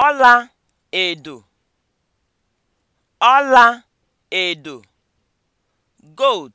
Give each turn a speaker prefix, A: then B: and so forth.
A: ọla edo ọla edo gold